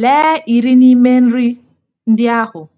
Lee iri n'ime nri ndị ahụ.